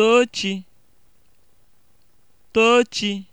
Tochi Tochi